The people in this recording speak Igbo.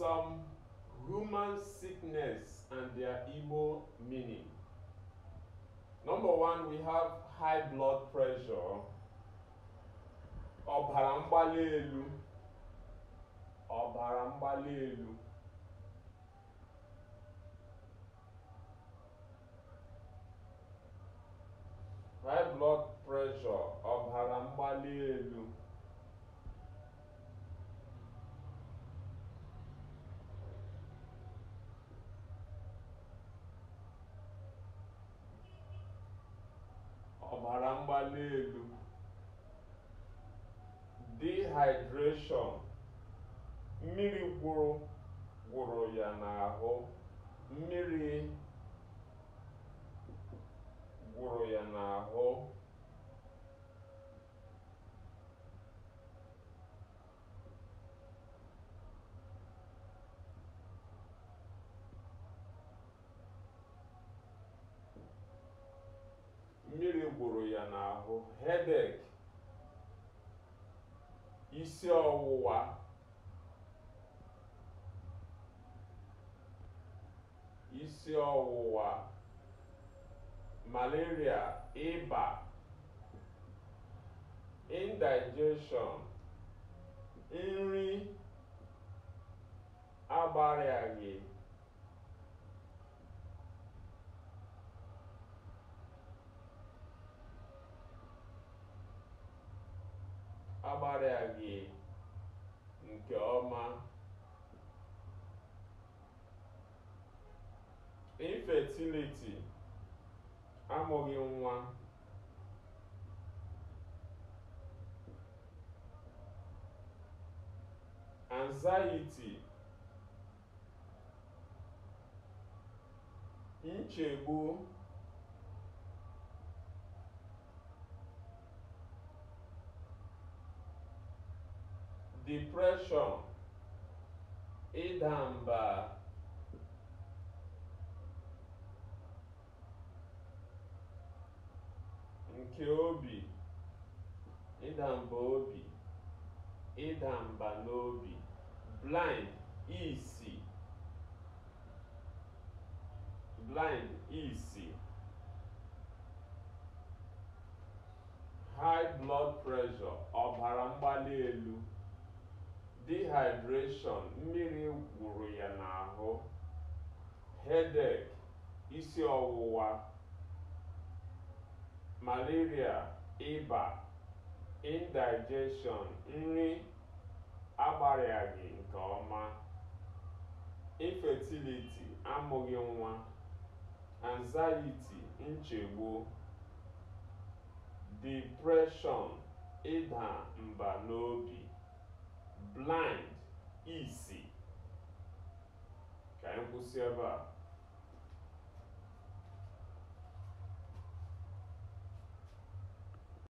some human sickness and their evil meaning. Number one, we have high blood pressure, ọbara mgbali elu, ọbara mgbali elu. mara mgbali elu dehydration mmiri gwụrụ gwụrụ ya n'ahụ mmiri gwụrụ ya n'ahụ mmiri gburu ya n'ahụ hedek isi ọwụwa isi ọwụwa malaria ịba indigestion nri agbariaghị agbara agbarịaghị nke ọma infertility amụghị nwa anxiety nchegbu depression ịda mba nke obi ịda mba obi ịda mba n'obi blind isi blind isi high blood pressure ọbara mgbali elu dehydration mmiri gwụrụ ya n'ahụ headache isi ọwụwa malaria ịba indigestion nri agbarịaghị nke ọma infertility amụghị nwa anxiety nchegbu depression ịda mba n'obi blind easy. ka anyị kwụsị